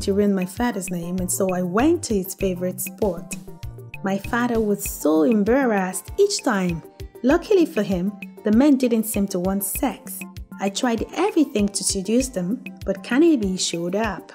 To ruin my father's name, and so I went to his favorite sport. My father was so embarrassed each time. Luckily for him, the men didn't seem to want sex. I tried everything to seduce them, but Kennedy showed up.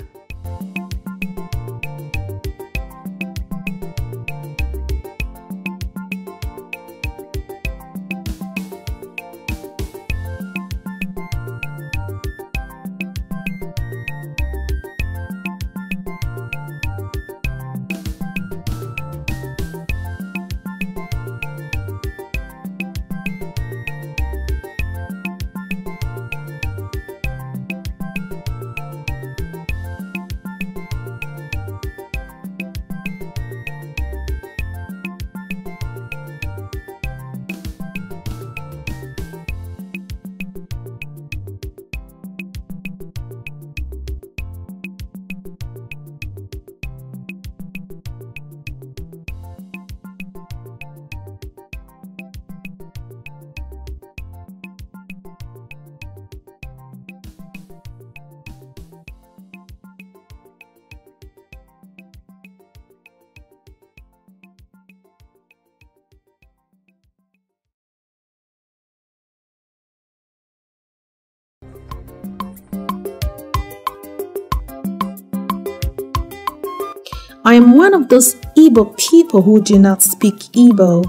I am one of those Igbo people who do not speak Igbo.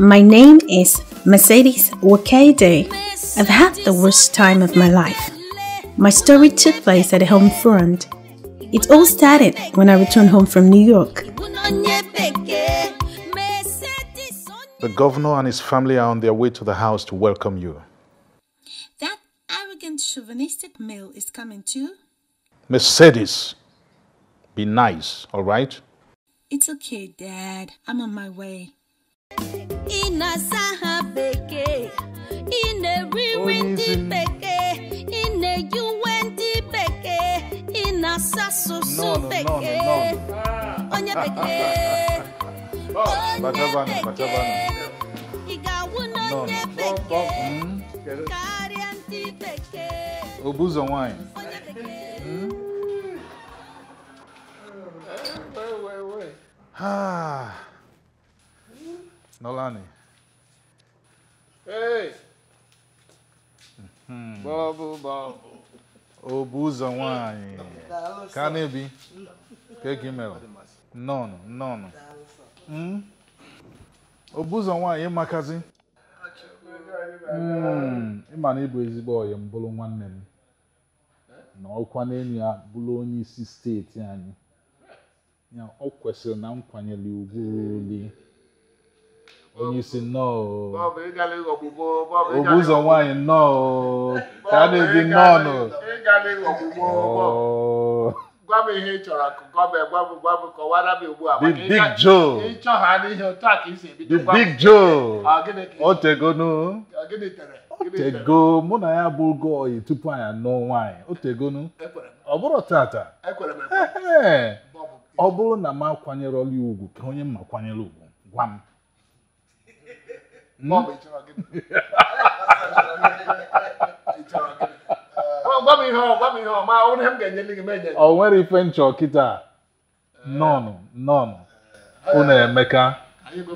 My name is Mercedes Wakede. I've had the worst time of my life. My story took place at home front. It all started when I returned home from New York. The governor and his family are on their way to the house to welcome you. That arrogant chauvinistic male is coming too. Mercedes. Be nice, all right? It's okay, Dad. I'm on my way. No, no, no, no, no. Obuzo wine. Hmm? Ah. Nolani. Hey. Hmm. Bobo, Bobo. Obuzo wine. Kanebi. Kekimelo. Nono, nono. Hmm? Obuzo wine, magazine. Hmm, ịma na ịbụ ezigbo ọyị mbụrụ nwanne m na ọkwa n'enyi ya bụrụ onye isi steeti anyị ya ọ kwesịrị na nkwanyere ugwu oli onye isi nnọọ obu ụzọ nwaanyị nnọọ ka a na-ebi nnọọ nụ gwa m ihe ị chọrọ gwa m gwa m gwa m kọwara m ugbu a the big joe ịchọ n'ihe otu a ka isi ebido the big joe otegonu otego mụ na ya bụ oge oyi tupu anyị anụ nwaanyị otegonu ọ bụrụ tata ọ bụrụ na m akwanyere ọlụ ugwu ka onye mma kwanyere ugwu gwa m Bọbụ, gwa m ihe ọ gwa ihe ọ ọ m ga gị nwere ife nchọ kịta nọnụ nọnụ unu eh, emeka eh.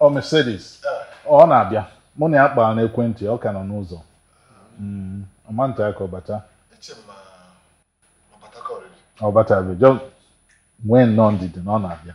ọ ọ na-abịa mụ na ya kpara n'ekwentị ọ ka nọ n'ụzọ ọmanta mm, ka Ọbata bata ọ nwee nnọọ ndidi na ọ na-abịa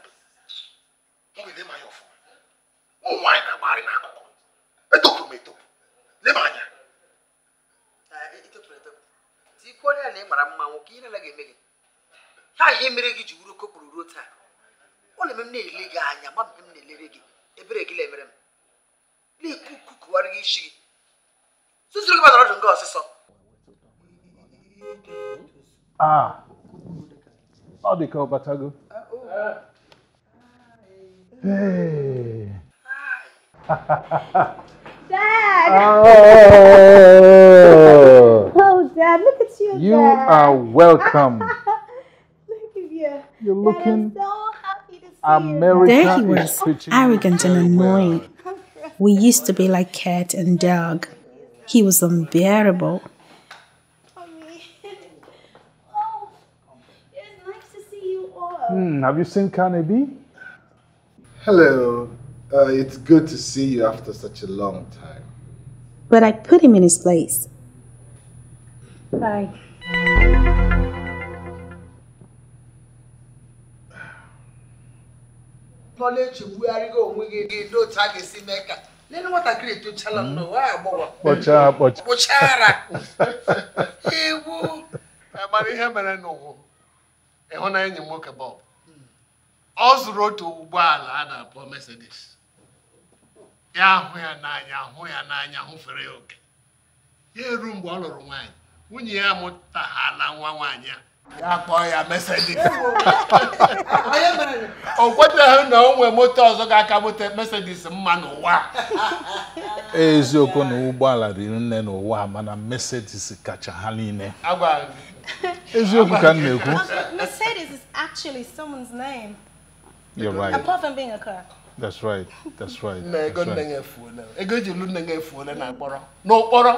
anya ọfụma ụmụ na-agbagharị n'akụkụ etopụrụ etopụ leba anya onye na ị mara mma nwoke ihe anaghị eme gị ha ihe mere gị ji wuru kopụrụ ruo taa ọ na-eme m na-ele gị anya ma mgbe m na-elere gị ebere gị m na-ekwu gị Hey. Dad. Oh. oh, Dad, look at you. You Dad. are welcome. look at you. You're looking. so happy to see American you. There he was, arrogant and annoying. We used to be like cat and dog. He was unbearable. mm, have you seen Carnegie? Hello. Uh, it's good to see you after such a long time. But I put him in his place. Bye. ọ zụrụ otu ụgbọala a na-akpọ Mercedes ya ahụ ya n'anya hụ ya n'anya hụfere ya oke ya eru mgbe ọ lụrụ nwaanyị nwunye ya mụtaghala nwa nwaanyị a ya kpọọ ya Mercedes o kwetaghị na o nwee moto ọzọ ga-aka moto Mercedes mma n'ụwa eziokwu na ụgbọala riri nne n'ụwa mana Mercedes kacha ha niile eziokwu ka m na-ekwu You're right. Apart from being a car. That's right. That's right. Na ego nne ya efuola. Ego eji lu nne ya efuola na akpọrọ. Na ụkpọrọ.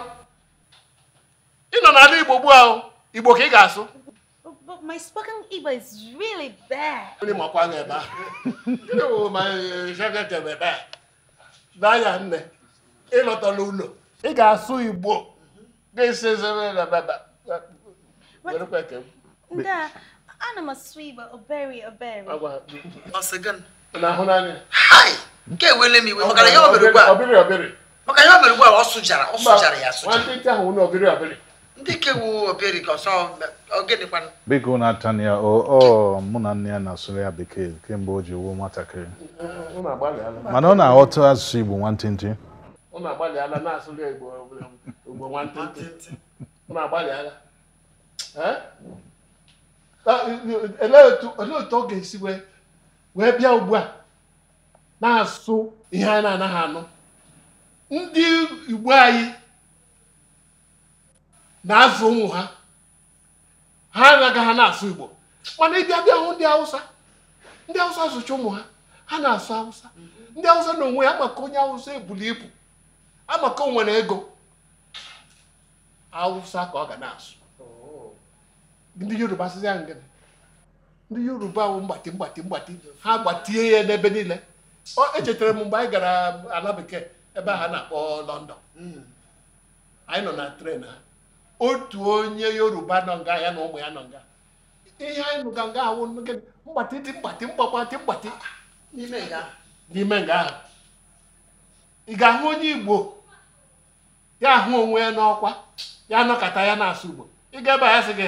Ị nọ n'ala Igbo gbu ahụ. Igbo ka ị But my spoken Igbo is really bad. Ndị makwa na ebe a. Gịnị bụ ma eh, shagete ebe a? N'anya nne, ị lọtara ụlọ. Ị ga-asụ Igbo. ga ana m asụ igbo obere obere nke ewele m iwe maka ya ọ bere ugbu a ọ sụjara ọ sụjara ya asụja ndị kewu obere ka ọsọ ogedekwana biko na-atanya ọ mụ na nne ya na-asụrụ ya bekee kemgbe o ji wuo nwatakịrị mana ọ na-aghọta asụsụ igbo nwantịntị ọ na olee ah, eh, eh, otu ọ ga-esi wee bịa ugbu a na-asụ ihe a na-anaghị anụ ndị igbo anyị na-azụ ụmụ ha ha anaghị ha na-asụ igbo mana ịbịa bịa hụ ndị awụsa ndị awụsa zụcha ụmụ ha ha na-asụ awụsa ndị awụsa na onwe ya amaka onye awụsa ebuli ibu amaka onwere ego awụsa ka ọ ga na-asụ ndị yoruba asịzi ya ngịnị ndị yoruba bụ mgbati mgbati mgbati ha gbatie ya n'ebe niile echetara m mgbe anyị gara ala bekee ebe ha na-akpọ london anyị nọ na tren ha otu onye yoruba nọ nga ya na ụmụ ya nọ nga ihe anyị nụga nga ahụ mgbati dị mgbati mgbakwati mgbati n'ime nga ahụ ị ga-ahụ onye igbo ya ahụ onwe ya n'ọkwa ya nọkọta ya na-asụ igbo ị ga ebe a ya sị gị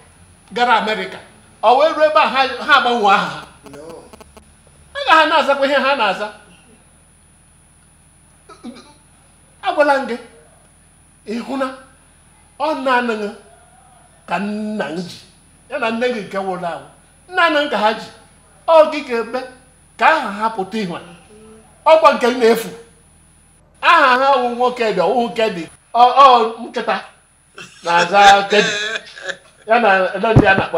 gara amerịka ọ wee ruo ebe a ha agbanwe aha ha aga ha na-azakwa ihe ha na-aza agwala m gị ịhụna ọ na-anaghị ka nna m ji ya na nne gị nke nwụrụ anwụ nna anaghị ka ha ji ọ gị ga-eme ka aha ha pụta ihu ọkwa nke na-efu aha ha wụ nwoke dị ọwụhụ nke dị ọ nkịta na-aza kedi ya na ndị a na-akpọ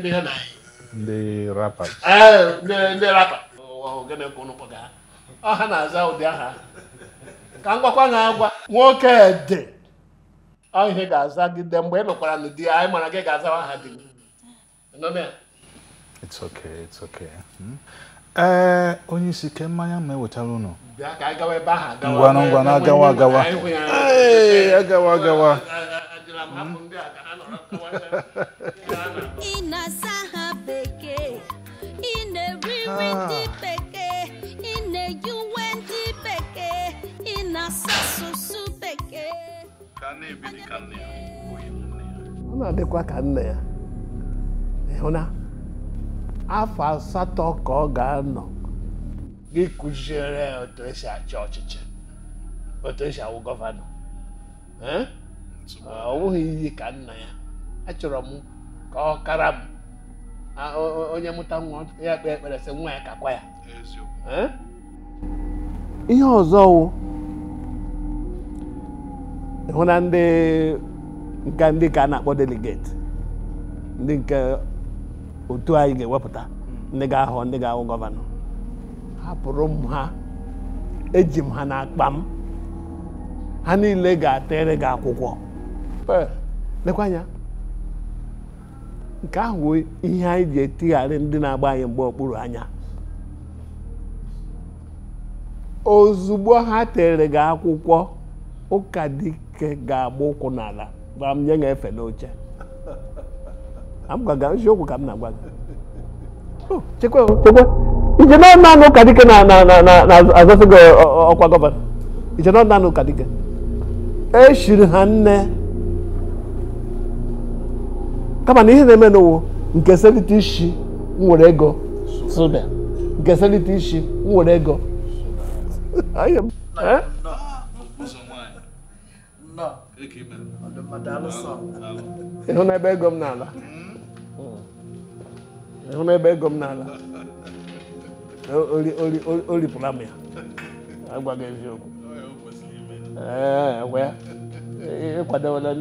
ndị ha na ndị rapa ndị rapa ogene ka ụnụ kpọga ọha na-aza ụdị aha ka m gwakwa na agwa nwoke dị ọ ihe ga-azagide mgbe ị nụkwara na di anyị mara gị ga-azawa di It's okay, it's okay. ee onye isi ke mmanya ma ewetara ụnụ Ee, agawa agawa agawa agawa ị hmm. na-asa ha bekee ị na-eri nri bekee ị na-eyi uwe ndị bekee ị na-asa asụsụ bekee ọ na-adịkwa ka nne ya ịhụna eh, afọ asatọ ka ọ ga-anọ gị kụziere ya otu esi achị ọchịchị otu esi awụ gọvanọ eh? ọ bụghị iyi ka nna ya achọrọ m ka ọ kara m onye mụta nwa ya kpee ekpere sị nwa ya kakwa ya ihe ọzọ wụ hụ na ndị nke ndị ka a na-akpọ delegate ndị nke otu anyị ga-ewepụta hmm. ndị ga ahụ ndị ga-ahụ gọvanọ hapụrụ m ha eji m ha n'akpa m ha niile ga atere gị akwụkwọ lekwa anya nke ahụ ihe anyị ji etigharị ndị na-agba anyị mgbe okpuru anya ozugbo ha tere gị akwụkwọ ụka dike ga-agba ụkwụ n'ala gwara m nye ga efe n'oche eziokwu ka m na-agwa gị oh, chekwa ije nọọnanụ ụka dike na-azọsị gị ọkwa gọvanọ ije nọọnanụ ụka dike eshiri ha nne kama na ihe na-eme n'ụwa nke selite ishi nwere ego nke selite ishi nwere ego ịhụ n'ebe ego m n'ala ịhụ n'ebe ego m n'ala o ripụla m ya agwaghị eziokwu ee ịkwadewela ya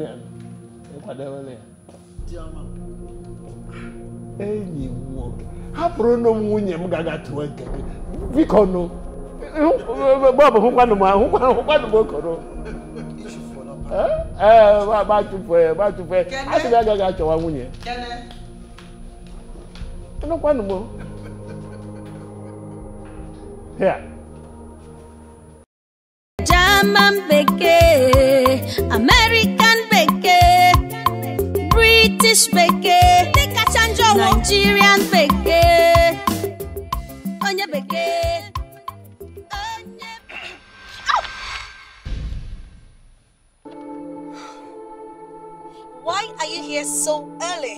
ịkwadewela ya enyi m nwoke hapụrụnụ m nwunye m ga-agatụwa nke gị biko nụ gbe ọbụ hụkwanụ m hụkwanụ m okoro ee gbatụfe gbatụfe a sị gị agaghị achọwa nwunye anụkwanụ m here bekee American bekee British bekee dị kacha njọ wụ Nigerian bekee onye bekee Why are you here so early?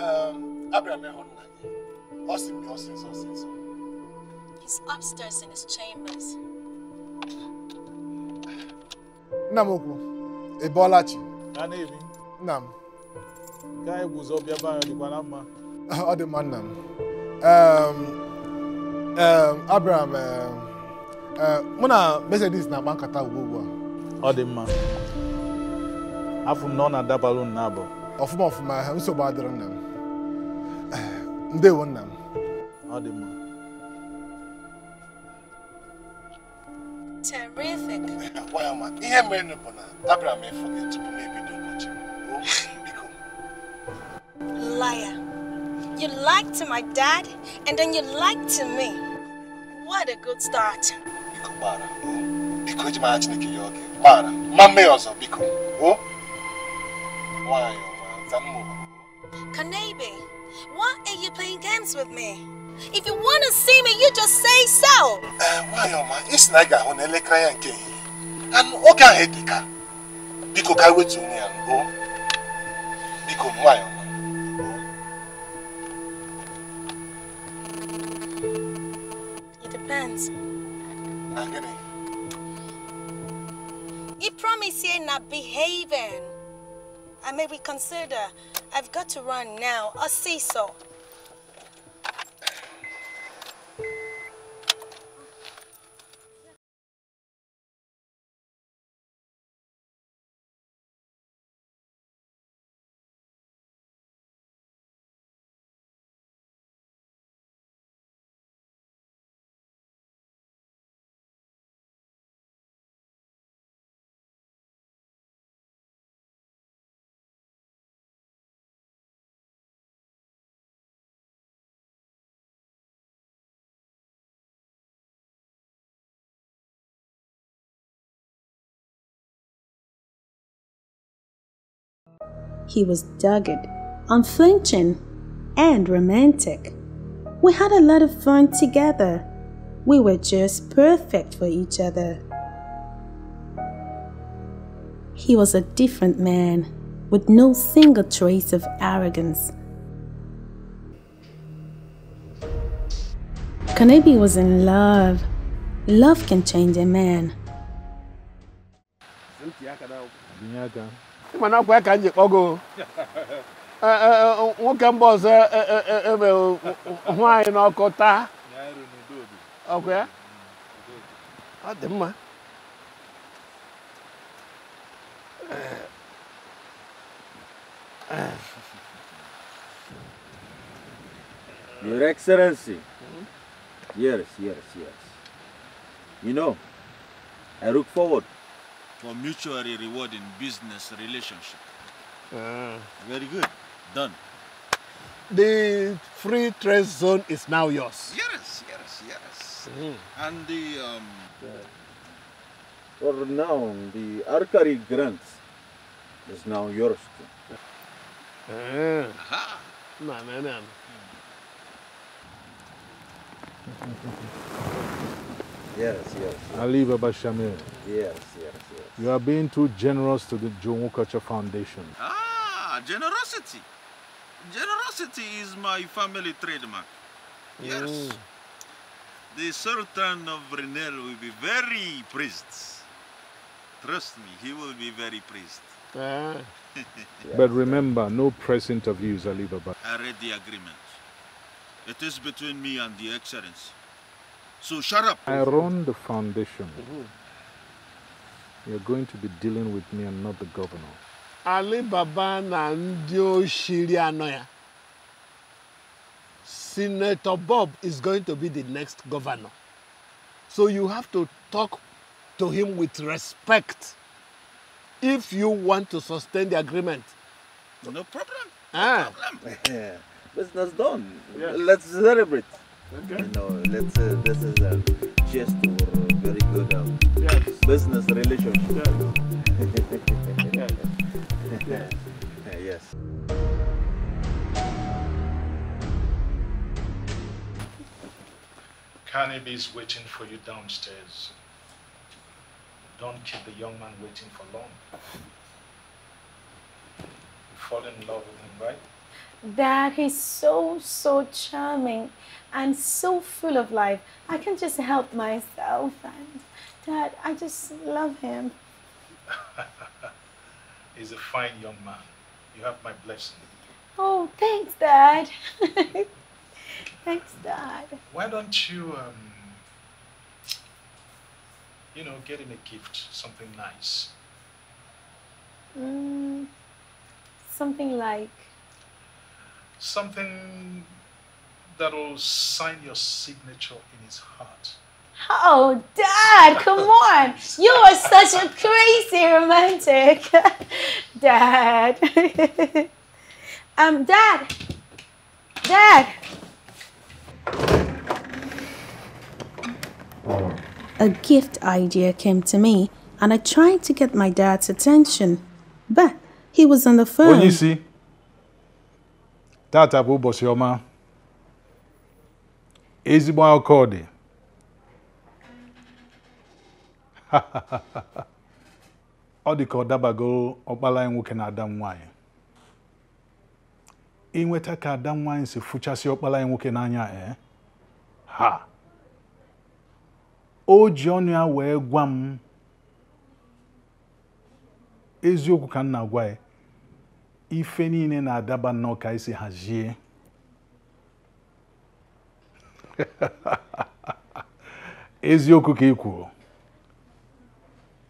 Um, Abraham ehụrụ na gị. Ọ sị m He's upstairs in his chambers. Namoku, m ukwu, ị bọọla chi? ka anyị guzo bịa be anyị na mma ọ dị mma nna m abịara mụ na Mercedes na-agba nkata ugbu ugbu a ọ dị mma afụ na ọ na-adabalụ ọfụma ọfụma nsogbu adịrị nna m ndewo nna m ọ dị mma Ihe mere bụ na m ịfụ m ebido Liar. You lied to my dad, and then you lied to me. What a good start. Biko gbara, biko eji mara Chineke ya oge. Gbara, ma mmee ọzọ, biko. O? Nwanyị Kanebe, why are you playing games with me? If you want to see me, you just say so. Eh, why, ọma, isi naga ị ga-ahụ na elekere ya nke ehihie. Anụ oge Biko ka wetu onwe ya, Biko, nwanyị ọma. You promise you're not behaving. I may reconsider. I've got to run now. I'll see so. He was dogged, unflinching, and romantic. We had a lot of fun together. We were just perfect for each other. He was a different man, with no single trace of arrogance. Kanebi was in love. Love can change a man. mana akwa ka m ji kpọgo nwoke mba ọzọ eme hụ anyị n'ọkụ taa ọkwa ya ọ dị mma Your Excellency. Hmm? Yes, yes, yes. You know, I look forward for mutually rewarding business relationship. Uh, Very good. Done. The free trade zone is now yours. Yes, yes, yes. Mm. And the... Um, yeah. For now, the Arcari grant is now yours too. Uh, ah. Aha. Man, man, man. yes, yes. Ali Baba Shamir. Yes, yes. You are being too generous to the Jomo Culture Foundation. Ah, generosity. Generosity is my family trademark. Yes. Mm. The Sultan of Brunel will be very pleased. Trust me, he will be very pleased. Ah. but remember, no press interviews, Alibaba. I read the agreement. It is between me and the Excellency. So shut up. I run the foundation. Mm -hmm. You're going to be dealing with me and not the governor. Ali Baba na ndị oshiri Senator Bob is going to be the next governor. So you have to talk to him with respect if you want to sustain the agreement. No problem. Ah. problem. Business done. Yes. Let's celebrate. Okay. You know, let's, uh, this is uh, just uh, very good. Um, business relationship. Yeah. yeah. yeah. yes. Carnaby is waiting for you downstairs. Don't keep the young man waiting for long. You fall in love with him, right? Dad, he's so, so charming and so full of life. I can just help myself and... Dad, I just love him. He's a fine young man. You have my blessing. Oh, thanks, Dad. thanks, Dad. Why don't you, um, you know, get him a gift, something nice? Mm, something like? Something that'll sign your signature in his heart. Oh, Dad, come on. You are such a crazy romantic. Dad. um, Dad. Dad. A gift idea came to me, and I tried to get my dad's attention, but he was on the phone. Onyisi, tata bụ ụbọchị ọma. Ezigbo akọ dị. ọ dị ka ọ dabago ọkpala anyị nwoke na ada nwanyị nwaanyị inweta ka ada nwaanyị si fụchasị ọkpala anyị nwoke n'anya ee eh? ha o ji ọnụ ya wee gwa m eziokwu ka m na-agwa ya ife niile na-adaba nnọọ ka esi hazie eziokwu ka ị kwuru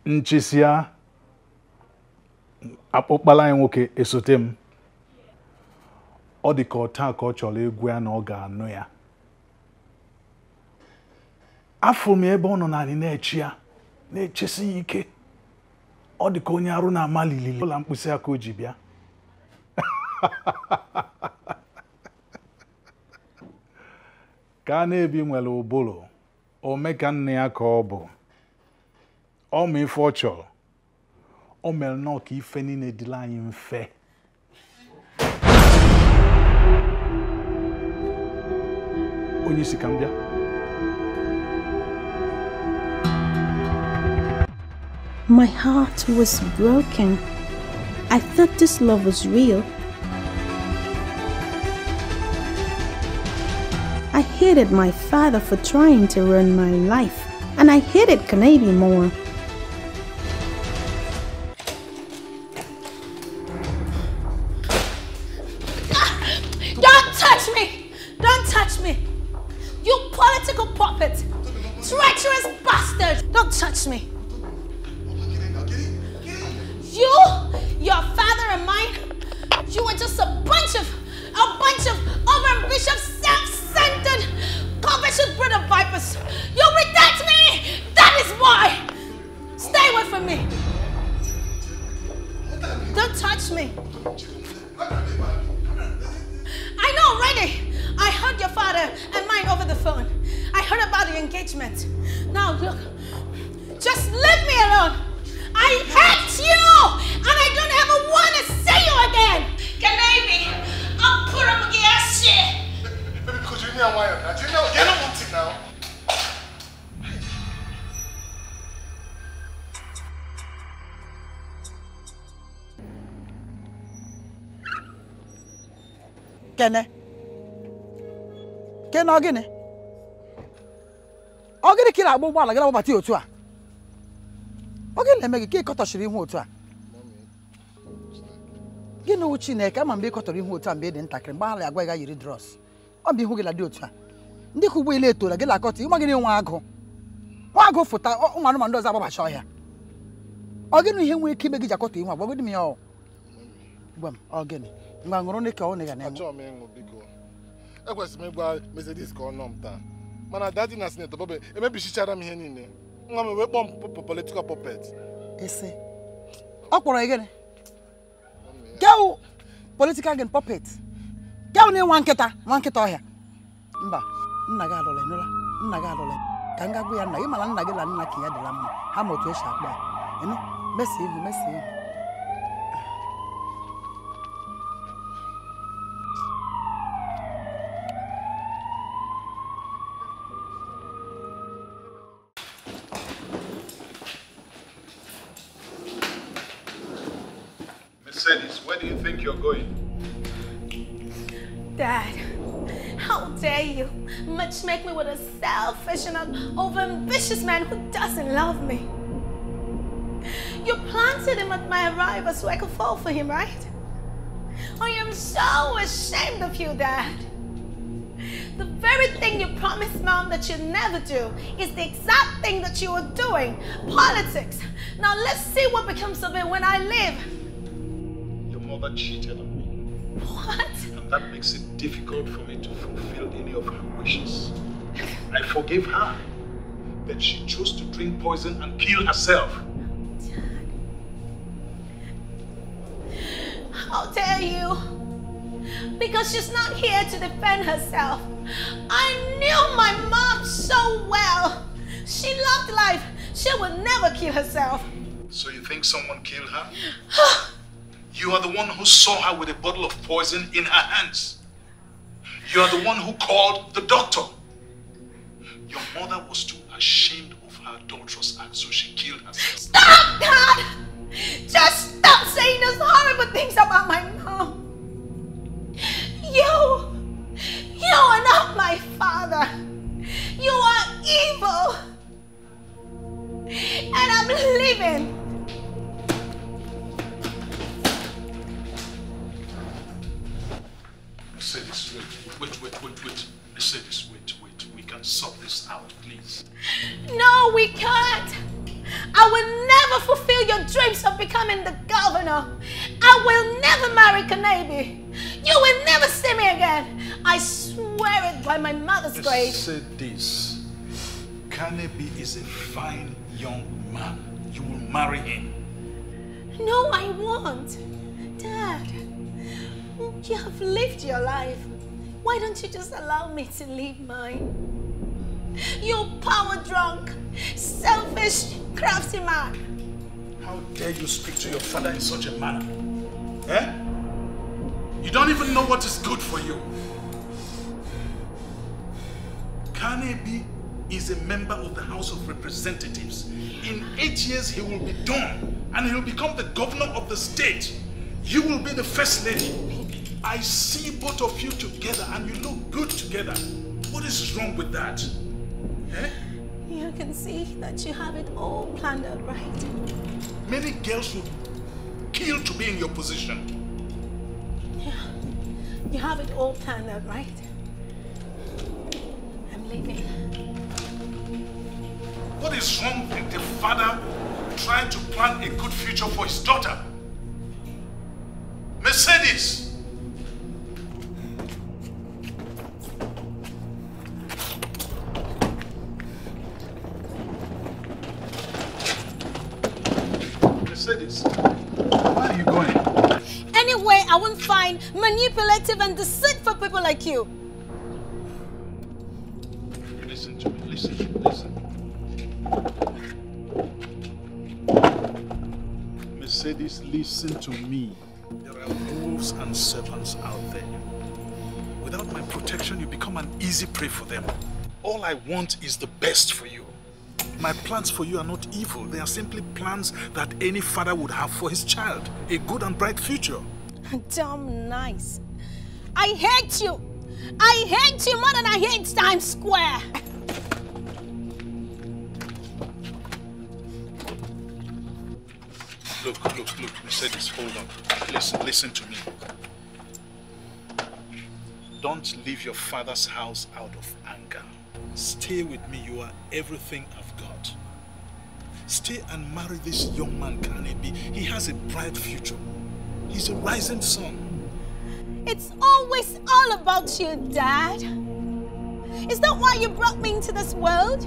nchịsịa akpụkpala anyị nwoke esote m ọ dị ka taa ka ọ chọrọ egwu ya na ọ ga-anụ ya afọ m ebe ọ nọ na-echi ya na-echesi ya ike ọ dị ka onye arụ na amalili lilili ụlọ mkpịsị aka o ji bịa ka a na-ebi nwere ụbụrụ ome nne ya ka ọ bụ ọ ọ My heart was broken. I thought this love was real. I hated my father for trying to ruin my life, and I hated Canadian more. ọ gịnị ọ gịnị ka ị na-agba ụgbọala gị na-agbabata otu a ọ gịnị na-eme gị ka ị kọtọchiri ihu otu a gịnị wụ Chineke ama mgbe ị kọtọrọ ihu otu a mgbe ị dị ntakịrị mgbe ala agwa gị yiri drọs? ọ bụ ihu gị na dị otu a ndị ka ụgbọelu etola gị na-akọta ịma gịnị nwa agụ nwa agụ fụta ụmụ anụmanụ ọzọ agbabacha ọhịa ọ gịnị ihe nwere ike ime gị ji akọta ihu agbagodị m ya ọ gwa gịnị ngwa ṅụrụ ka ọ na-ega na-enwe ekwesịrị m ịgwa Mercedes ka ọ nọ m taa mana dadi na sinetọ bobe emebichichara m ihe niile nwa m wee kpọọ m politikal puppet ọ kpọrọ gịnị gaụ politikal gịnị puppet gaụ na nwa nkịta nwa nkịta ọhịa mba nna gị adọla enyela nna gị adọla ka m ga ya nna gị mana nna gị la nna ka ya dịla mma ha ma otu esi akpa ya mesi ihu mesi ihu do you think you're going? Dad, how dare you matchmake me with a selfish and an overambitious man who doesn't love me? You planted him at my arrival so I could fall for him, right? I am so ashamed of you, Dad. The very thing you promised Mom that you'd never do is the exact thing that you are doing. Politics. Now let's see what becomes of it when I live mother cheated on me. What? And that makes it difficult for me to fulfill any of her wishes. I forgave her, that she chose to drink poison and kill herself. Dad. How dare you? Because she's not here to defend herself. I knew my mom so well. She loved life. She would never kill herself. So you think someone killed her? You are the one who saw her with a bottle of poison in her hands. You are the one who called the doctor. Your mother was too ashamed of her daughter's act, so she killed herself. Stop, Dad! Just stop saying those horrible things about my mom. You, you are not my father. You are evil. And I'm living say this, wait, wait, wait, wait, They say this, wait, wait, we can sort this out, please. No, we can't. I will never fulfill your dreams of becoming the governor. I will never marry Kanabi. You will never see me again. I swear it by my mother's grave. I said this. Kanabi is a fine young man. You will marry him. No, I won't. Dad. You have lived your life. Why don't you just allow me to live mine? You power drunk, selfish, crafty man. How dare you speak to your father in such a manner? Eh? You don't even know what is good for you. Kanebi is a member of the House of Representatives. In eight years, he will be done, and he will become the governor of the state. You will be the first lady. I see both of you together and you look good together. What is wrong with that? Eh? can see that you have it all planned out right. Many girls would kill to be in your position. Yeah, you have it all planned out right. I'm leaving. What is wrong with the father trying to plan a good future for his daughter? Mercedes! manipulative and deceitful people like you. Listen to me, listen, listen. Mercedes, listen to me. There are wolves and serpents out there. Without my protection, you become an easy prey for them. All I want is the best for you. My plans for you are not evil. They are simply plans that any father would have for his child. A good and bright future. Damn nice. I hate you. I hate you more than I hate Times Square. Look, look, look, Mercedes, hold on. Listen, listen to me. Don't leave your father's house out of anger. Stay with me, you are everything I've got. Stay and marry this young man, Kanebi. He has a bright future. He's a rising sun. It's always all about you, Dad. Is that why you brought me into this world?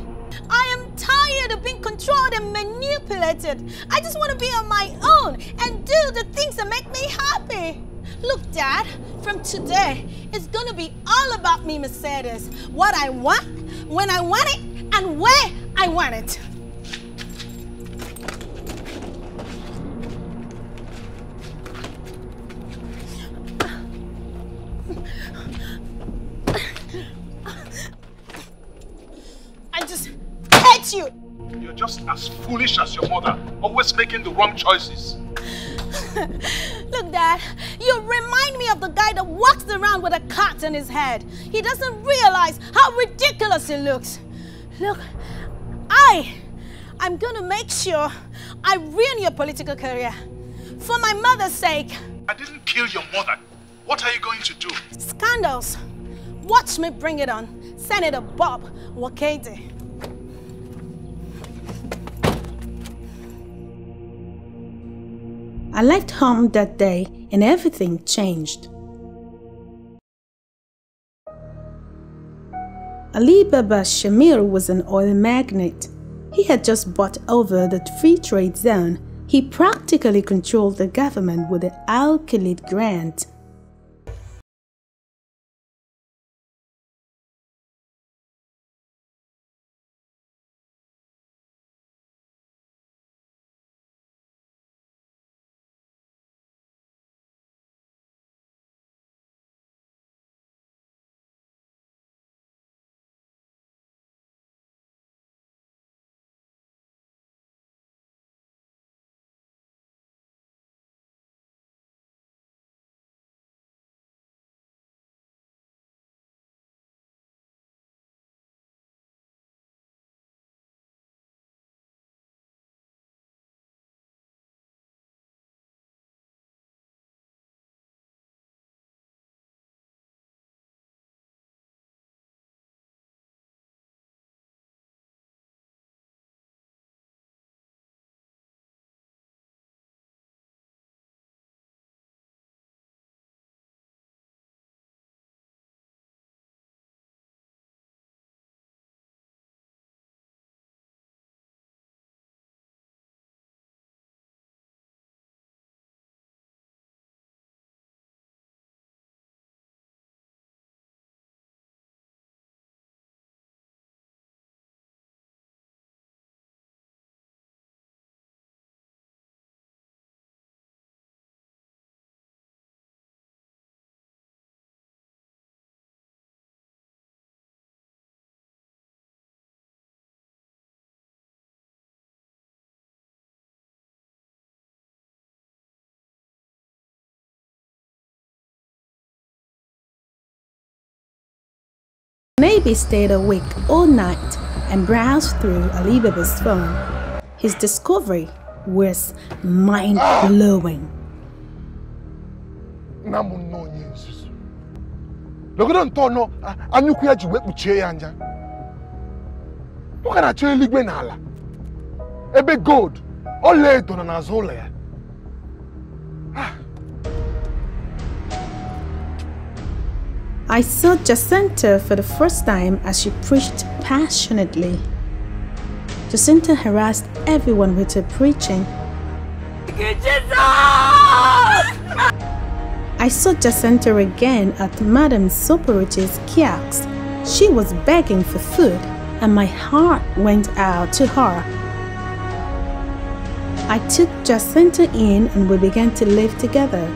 I am tired of being controlled and manipulated. I just want to be on my own and do the things that make me happy. Look, Dad, from today, it's going to be all about me, Mercedes. What I want, when I want it, and where I want it. you. You're just as foolish as your mother, always making the wrong choices. Look, Dad, you remind me of the guy that walks around with a cat in his head. He doesn't realize how ridiculous it looks. Look, I, I'm gonna make sure I ruin your political career. For my mother's sake. I didn't kill your mother. What are you going to do? Scandals. Watch me bring it on. Senator Bob Wakete. I left home that day and everything changed. Ali Baba Shamir was an oil magnate. He had just bought over the free trade zone. He practically controlled the government with the Al Khalid grant Maybe stayed awake all night and browsed through Alibaba's phone. His discovery was mind blowing. nọgide ntọ nọ na ebe gold ọlaedo nọ n'azụ ya I saw Jacinta for the first time as she preached passionately. Jacinta harassed everyone with her preaching. I saw Jacinta again at Madame Soporich's kiosks. She was begging for food and my heart went out to her. I took Jacinta in and we began to live together.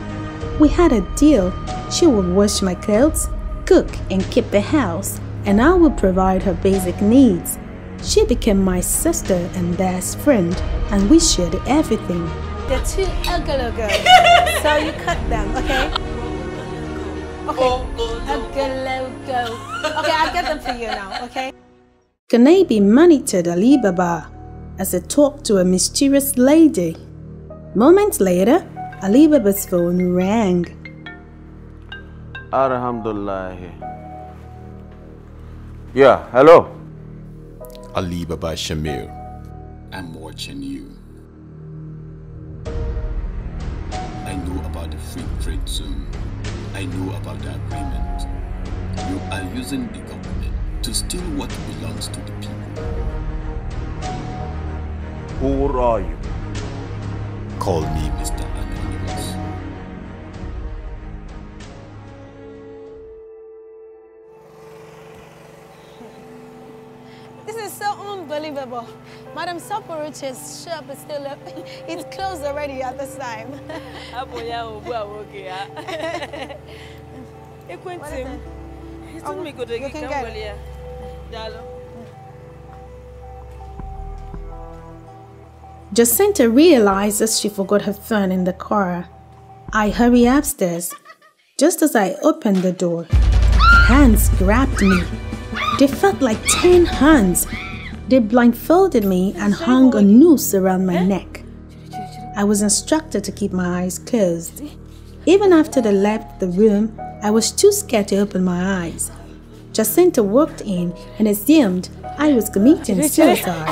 We had a deal. She would wash my clothes cook, and keep the house, and I would provide her basic needs. She became my sister and best friend, and we shared everything. They're too ogologo, so you cut them, okay? Okay, ogologo. Okay, I'll get them for you now, okay? Kanebi monitored Alibaba as he talked to a mysterious lady. Moments later, Alibaba's phone rang. Alhamdulillah. Yeah, hello. Ali Baba Shamir. I'm watching you. I know about the free trade zone. I know about the agreement. You are using the government to steal what belongs to the people. Who are you? Call me Mr. Anonymous. unbelievable. Madam Saporuche's shop is still open. Uh, it's closed already at this time. what is it? Oh, you can get it. Jacinta realizes she forgot her phone in the car. I hurry upstairs. Just as I open the door, hands grabbed me. They felt like 10 hands they blindfolded me and hung a noose around my neck. I was instructed to keep my eyes closed. Even after they left the room, I was too scared to open my eyes. Jacinta walked in and assumed I was committing suicide.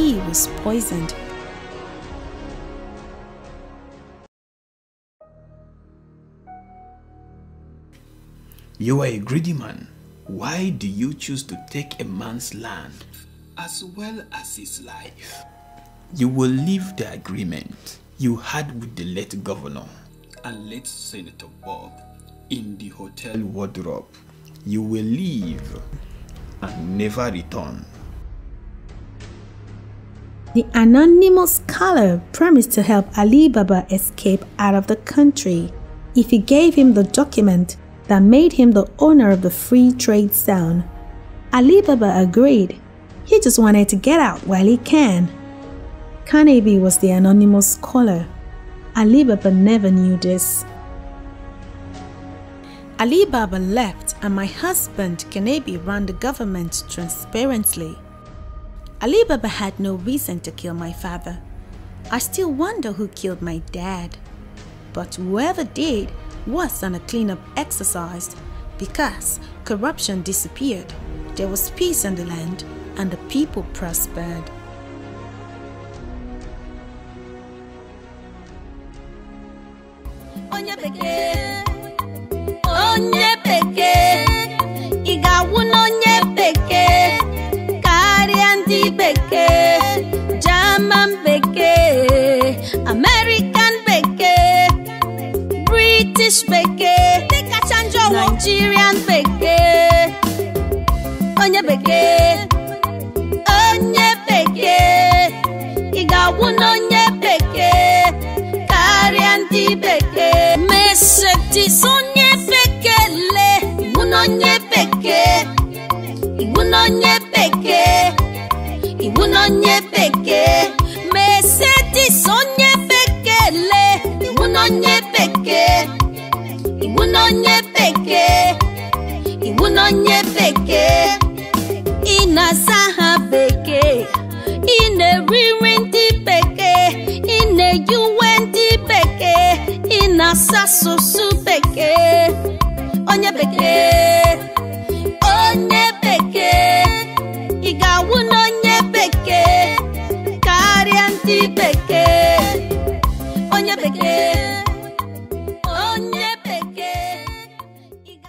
he was poisoned. You are a greedy man. Why do you choose to take a man's land as well as his life? You will leave the agreement you had with the late governor and late Senator Bob in the hotel wardrobe. You will leave and never return. The anonymous scholar promised to help Ali Baba escape out of the country if he gave him the document that made him the owner of the free trade zone. Ali Baba agreed. He just wanted to get out while he can. Carnaby was the anonymous scholar. Ali Baba never knew this. Ali Baba left and my husband Kanebi ran the government transparently. Ali Baba had no reason to kill my father. I still wonder who killed my dad. But whoever did was on a cleanup exercise because corruption disappeared, there was peace in the land, and the people prospered. onye bekee onye bekee Nigerian bekee, German bekee, American bekee, British bekee, Nigerian bekee, onye bekee, onye bekee, ị ga-awụ n'onye bekee, karịa ndị bekee, mesetis onye bekele, mụ n'onye bekee, ịbụ n'onye kuna nye peke, meseti sonye pekele iwuna nye pekee iwuna nye peke, iwuna nye peke, inasaha pekee peke. na na-eriri peke, ine i peke, na-eyiwe ndị bekee ị na-asa asụsụ onye peke, onye peke. te pegar.